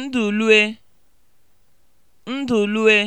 ndụlue ndụlue